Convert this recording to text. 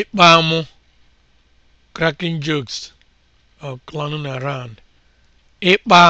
ịkpa amụ cracking jokes or clowning around ịkpa